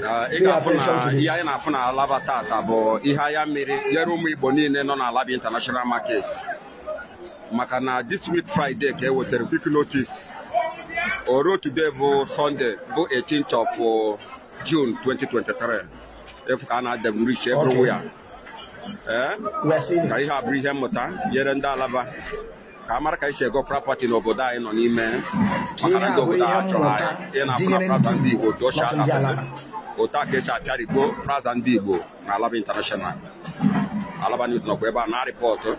Eh, ihe anyị na-afụ na alaba tata bụ ihe ahịa mmiri nyere ụmụ Igbo niile nọ na alaba international maket maka na this week Friday ka e wetara quick notice oro today bụ Sunday bụ 18th of uh, June 2023 efu ka a na-ada m rich everywhere eh? ka ihe a bụrụ ihe mmụta nyere ndị alaba ka a mara ka isi ego prapati n'obodo anyị nọ n'ime maka ndị obodo ha chọrọ anyị ịna-apụ na prapati otu ochie adapụsị otu aka esi apịarigbo praza ndị Igbo na Alaba International Alaba News nọkwa ebe a na-arịpọtụ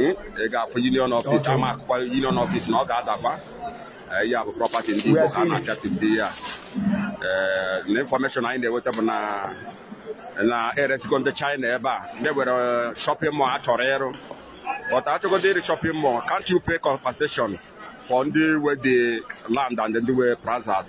eh, ị ga-afụ union office ama akụkwa union office na ọ ga-adakwa eh, ya bụ prọpati ndị Igbo ka a na-apịatụsi ya eh, na infọmeshọn anyị na-enweta bụ na na eresigo ndị China ebe a ndị were shọpịn mọl a chọrọ ịrụ but achọgodo ịrị shọpịn mọl can't you pay compensation for ndị we dị land and ndị we plazas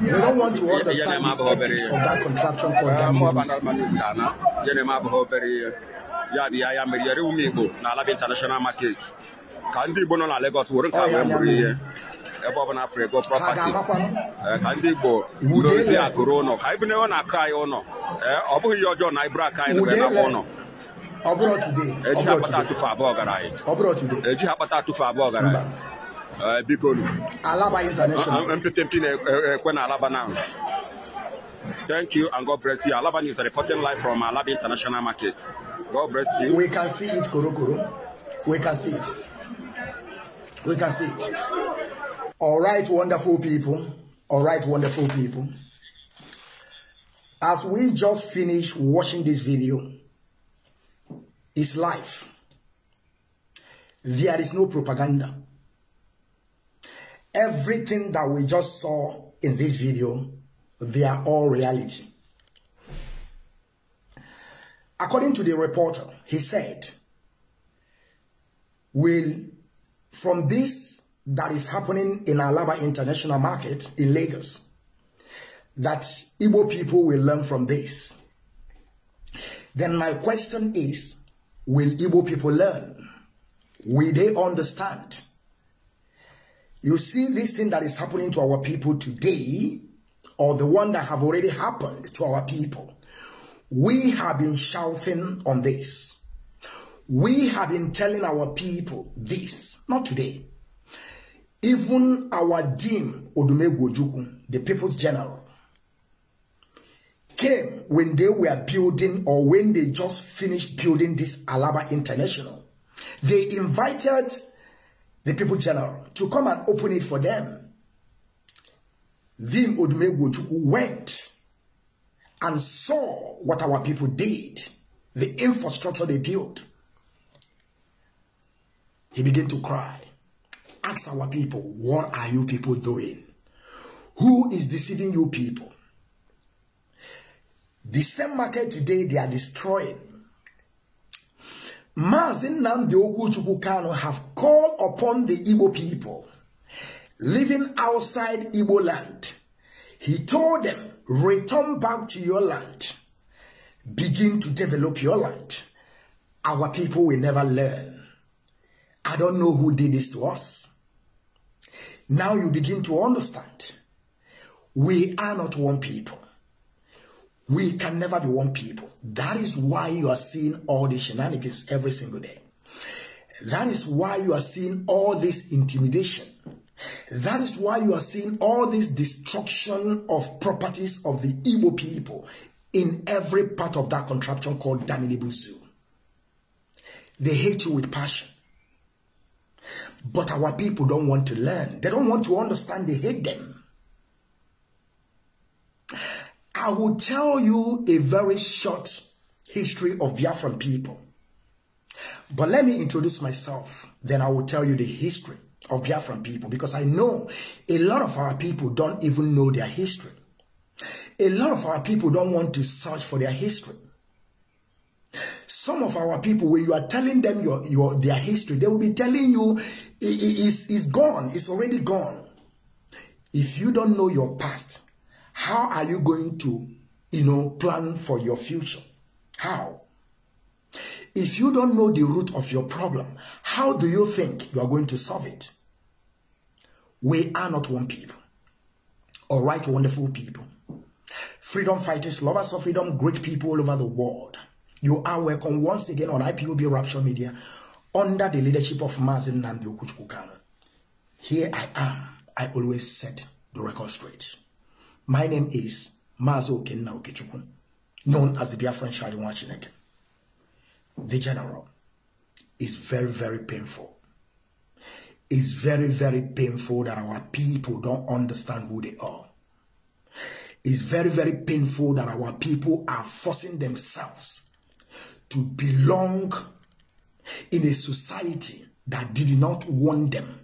They don't want to understand the ethics of that contraction called damages. ya bụ ya ya mere yere na alaba international market ka ndị igbo nọ na Lagos were nke abụọ bụrụ ihe ebe ọ afọ ego prọpati ka ndị igbo dozie akụrụ ụlọ ka na bụghị ihe ọjọọ na anyị bụrụ aka anyị na ụlọ eji ha kpata atụfe abụọ gara anyị eji Eh, bikonu alaba international ah, ah, mppmp eh, eh, kwena alaba now thank you and god bless you alaba news reporting live from alaba international market god bless you we can see it korokoro we can see it we can see it all right wonderful people all right wonderful people as we just finish watching this video it's life. there is no propaganda everything that we just saw in this video, they are all reality. According to the reporter, he said, will from this that is happening in Alaba International Market in Lagos, that Igbo people will learn from this. Then my question is, will Igbo people learn? Will they understand? You see this thing that is happening to our people today, or the one that have already happened to our people. We have been shouting on this. We have been telling our people this, not today. Even our dean, Odumegwojuku, the people's general, came when they were building or when they just finished building this Alaba International. They invited the people general, to come and open it for them. Then Odumegwochukwu went and saw what our people did, the infrastructure they built. He began to cry. Ask our people, what are you people doing? Who is deceiving you people? The same market today they are destroying Mazin Nnamdi Okuchukwu Kano have called upon the Igbo people living outside Igbo land. He told them, return back to your land. Begin to develop your land. Our people will never learn. I don't know who did this to us. Now you begin to understand. We are not one people. We can never be one people. That is why you are seeing all the shenanigans every single day. That is why you are seeing all this intimidation. That is why you are seeing all this destruction of properties of the Igbo people in every part of that contraption called Daminibuzu. They hate you with passion. But our people don't want to learn. They don't want to understand they hate them. I will tell you a very short history of Biafran people. But let me introduce myself, then I will tell you the history of Biafran people because I know a lot of our people don't even know their history. A lot of our people don't want to search for their history. Some of our people, when you are telling them your, your their history, they will be telling you it, it, it's, it's gone, it's already gone. If you don't know your past, how are you going to, you know, plan for your future? How? If you don't know the root of your problem, how do you think you are going to solve it? We are not one people. All right, wonderful people. Freedom fighters, lovers of freedom, great people all over the world. You are welcome once again on IPUB Rapture Media under the leadership of Mazin Nambi Okuchukukano. Here I am. I always set the record straight. My name is Mazo Okenna Okechukwu, known as the Biafran Shadiwan Chineke. The general is very, very painful. It's very, very painful that our people don't understand who they are. It's very, very painful that our people are forcing themselves to belong in a society that did not want them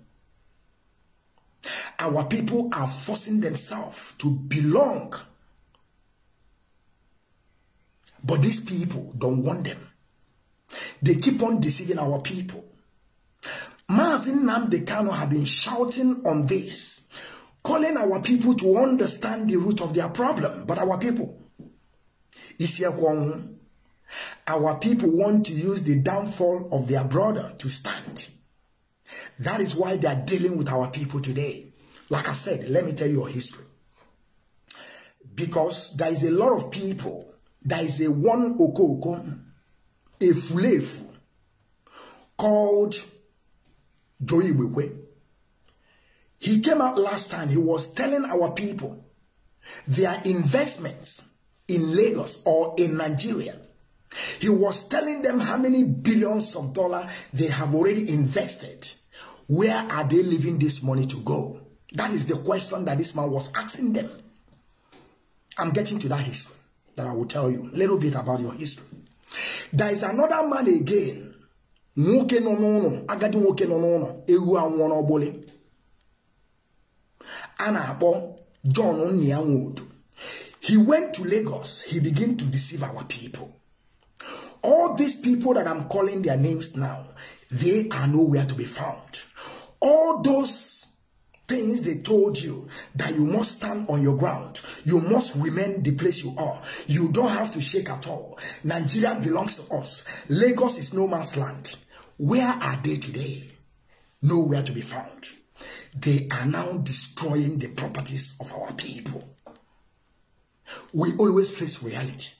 our people are forcing themselves to belong. But these people don't want them. They keep on deceiving our people. Mazin Namdekano have been shouting on this, calling our people to understand the root of their problem. But our people, our people want to use the downfall of their brother to stand. That is why they are dealing with our people today. Like I said, let me tell you your history. Because there is a lot of people, there is a one oko, a fulefu, called Joey Wewe. He came out last time, he was telling our people their investments in Lagos or in Nigeria. He was telling them how many billions of dollars they have already invested. Where are they leaving this money to go? That is the question that this man was asking them. I'm getting to that history that I will tell you a little bit about your history. There is another man again. Nwoke nọ n'ụlọ, agadi nwoke nọ n'ụlọ, ewu anwụọ n'ọgbụlị. A John Nnianwodu. He went to Lagos. He began to deceive our people. All these people that I'm calling their names now, they are nowhere to be found. All those things they told you that you must stand on your ground. You must remain the place you are. You don't have to shake at all. Nigeria belongs to us. Lagos is no man's land. Where are they today? Nowhere to be found. They are now destroying the properties of our people. We always face reality.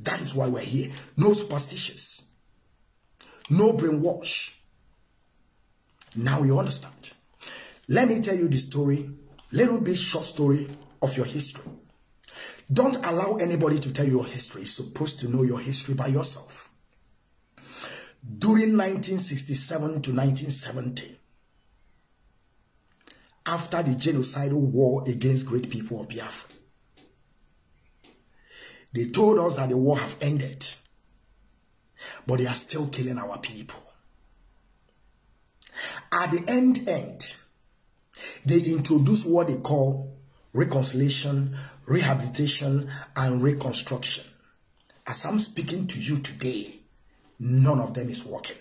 That is why we're here. No superstitions. No brainwash. Now you understand. Let me tell you the story, little bit short story of your history. Don't allow anybody to tell you your history. You're supposed to know your history by yourself. During 1967 to 1970, after the genocidal war against great people of Biafra, they told us that the war have ended, but they are still killing our people. At the end end, they introduce what they call reconciliation, rehabilitation, and reconstruction. As I'm speaking to you today, none of them is working.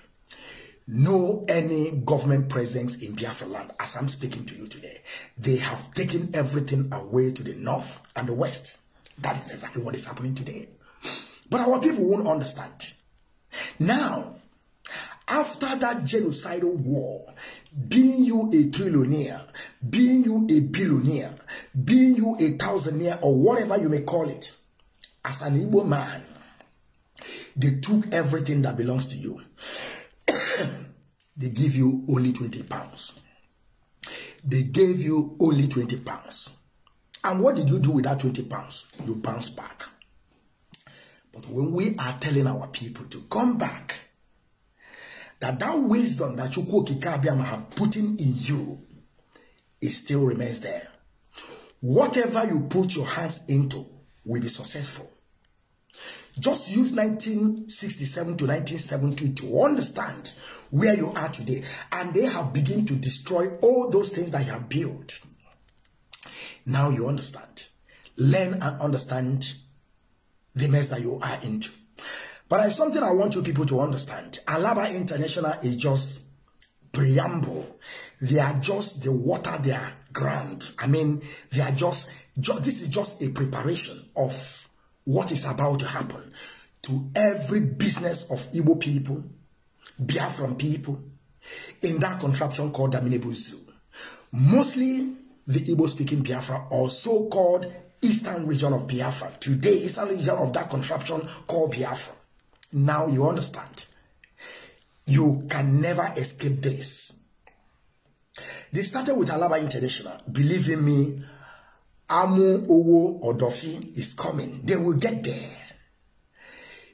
No any government presence in Biafra land as I'm speaking to you today. They have taken everything away to the north and the west. That is exactly what is happening today. But our people won't understand. Now, after that genocidal war, being you a trillionaire, being you a billionaire, being you a thousandaire, or whatever you may call it, as an Igbo man, they took everything that belongs to you. they give you only 20 pounds. They gave you only 20 pounds. And what did you do with that 20 pounds? You bounce back. But when we are telling our people to come back, that that wisdom that Chukwu Kikabiyama have put in you, it still remains there. Whatever you put your hands into will be successful. Just use 1967 to nineteen seventy to understand where you are today. And they have begun to destroy all those things that you have built. Now you understand. Learn and understand the mess that you are into. But it's something I want you people to understand. Alaba International is just preamble. They are just the water their ground. I mean, they are just, this is just a preparation of what is about to happen to every business of Igbo people, Biafran people, in that contraption called Daminebo Zoo. Mostly the Igbo-speaking Biafra or so-called eastern region of Biafra. Today, eastern region of that contraption called Biafra. Now you understand. You can never escape this. They started with Alaba International. Believe in me, Amu Owo Odofi is coming. They will get there.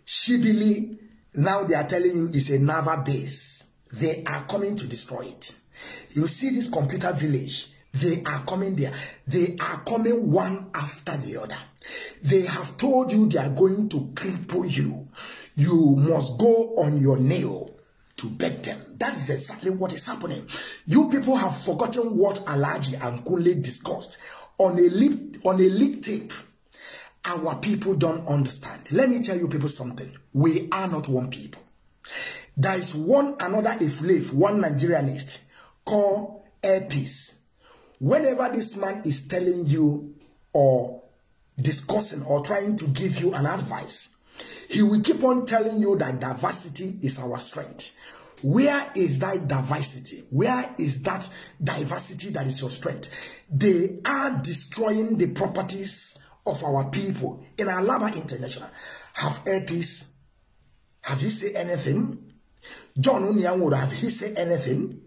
Shibili, now they are telling you it's a Nava base. They are coming to destroy it. You see this computer village. They are coming there. They are coming one after the other. They have told you they are going to cripple you. you must go on your nail to beg them. That is exactly what is happening. You people have forgotten what Alaji and Kunle discussed on a lip on a leak tape. Our people don't understand. Let me tell you people something. We are not one people. There is one another if live one Nigerianist called Airpeace. Whenever this man is telling you or discussing or trying to give you an advice He will keep on telling you that diversity is our strength. Where is that diversity? Where is that diversity that is your strength? They are destroying the properties of our people in Alaba International. Have heard this? Have you said anything? John Onyan would have he said anything?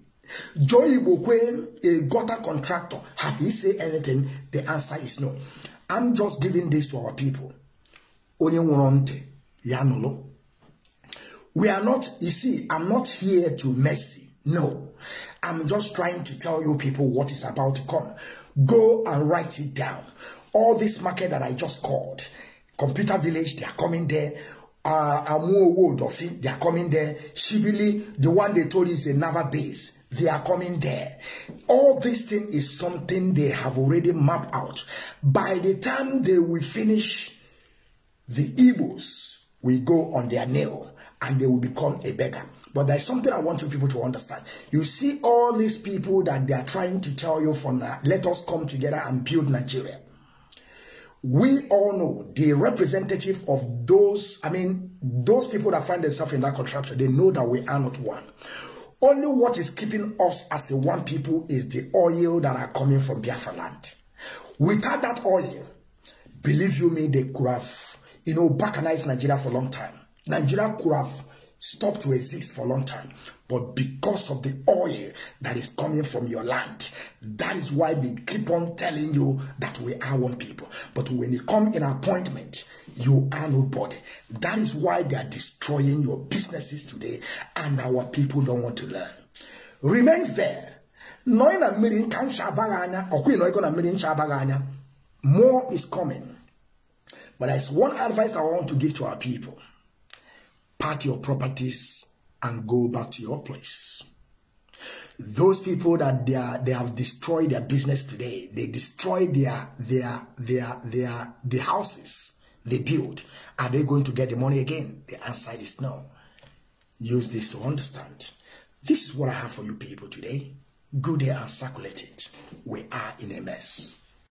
Joy Bokwe, a gutter contractor, have he said anything? The answer is no. I'm just giving this to our people. Onye Yanolo. We are not, you see, I'm not here to mercy. No. I'm just trying to tell you people what is about to come. Go and write it down. All this market that I just called, Computer Village, they are coming there. Uh, Amuowo Dofi, they are coming there. Shibili, the one they told is another base they are coming there. All this thing is something they have already mapped out. By the time they will finish the Igbos, will go on their nail and they will become a beggar. But there's something I want you people to understand. You see all these people that they are trying to tell you for now, let us come together and build Nigeria. We all know the representative of those, I mean, those people that find themselves in that contraption, they know that we are not one. Only what is keeping us as a one people is the oil that are coming from Biafra land. Without that oil, believe you me, they could have you know, balkanized Nigeria for a long time. Nigeria could have stopped to exist for a long time. But because of the oil that is coming from your land, that is why they keep on telling you that we are one people. But when you come in appointment, you are nobody. That is why they are destroying your businesses today and our people don't want to learn. Remains there. Knowing a million can shabaganya, or queen, knowing a million shabaganya, more is coming. But there's one advice I want to give to our people. Pack your properties and go back to your place. Those people that they are, they have destroyed their business today, they destroyed their, their, their, their, the houses they built. Are they going to get the money again? The answer is no. Use this to understand. This is what I have for you people today. Good day and circulate it. We are in a mess.